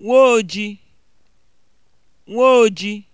nwoojii nwoojii